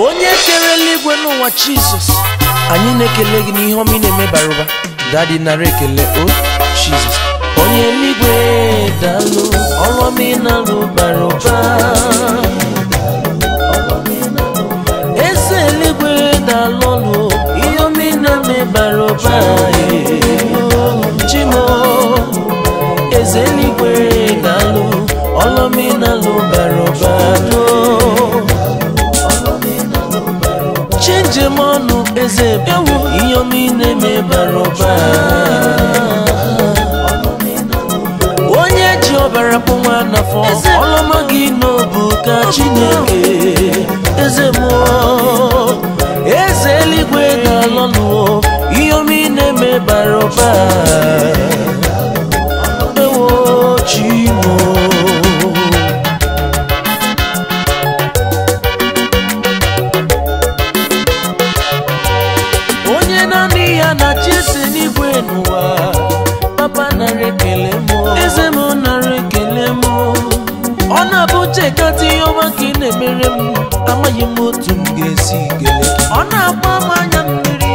onye kere eluigwe n'ụwa jizọs anyị na-ekele gị n'ihe ọma ị na-eme bara ụba dadi nara ekele o oh, jizọs onye eluigwe dalụ ọrụ ọma na-alụ bara ụba eze eluigwe dalụ ọlụ ihe ọma ị na-eme bara ụba njema ọnụ eze bụ ihe omine mebara ọbara onye ji ọbara kpọnwa n'afọ ọlọma gị n'obu ka chineke niile n'ụwa papa nara ekele m eze m nara ekele m ọ na-abụ chekata ihe ọma ka ị na-emere m amaghị m otu m ga-esi kele. ọ na-agba m anya mmiri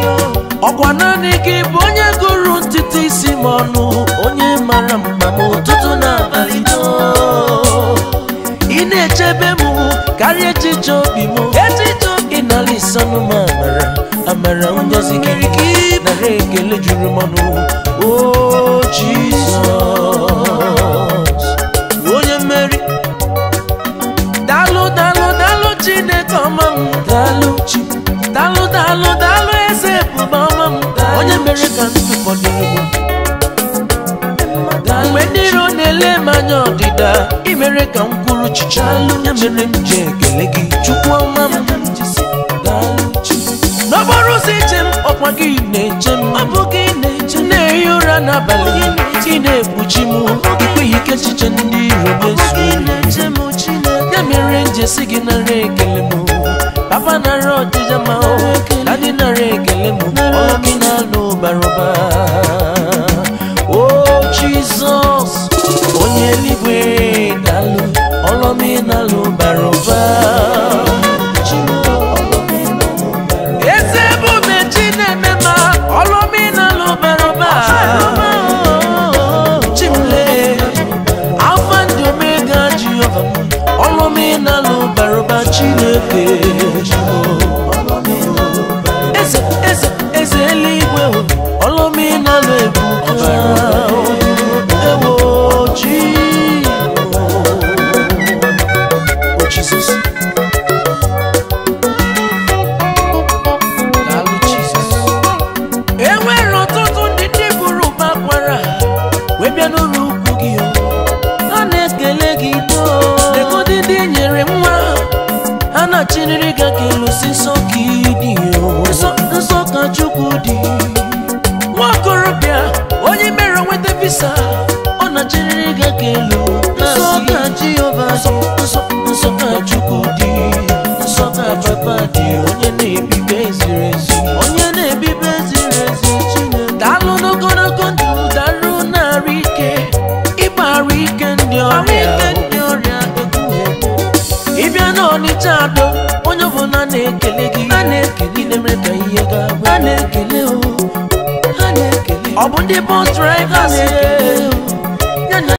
ọkwa naanị gị bụ onye gụrụ ntụtụ isi m ọnụ onye mara mma m na abalị ị na-echebe m karịa echiche obi m echiche obi na-alịsanụ m amara amara ngozi kirikiri every Oh, Jesus. Onye Mary, Daalụ, daalụ, daalụ Chineke ọma m. Daalụ chi. Daalụ, daalụ, daalụ eze ebube ọma m. Onye mere ka ndụ fọdụ egwu. Mgbe ndị iro na-ele m anya ọdịda, i mere ka m kwuru chicha. Ya mere m ji ekele gị, Chukwu ọma m. n'okporo ụzọ ije m ọkwa gị ya n'abalị ị na-ekpuchi m ikweghị ike echiche ndị iro mezuo ya mere njesi gị nara ekele m ọrụ m ị na-alụ bara ụba ọcha adọ onye ọbụla na-ekele na gị a na-ekele na-emere ka ihe gaa a na-ekele ọ bụ ndị bọs draịva na-ekele